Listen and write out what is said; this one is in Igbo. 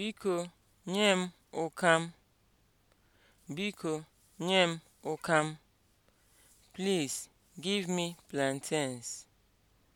Biko nye m ụkam. Biko nye m ụkam. Please give me plantains.